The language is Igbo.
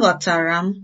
aghọtara m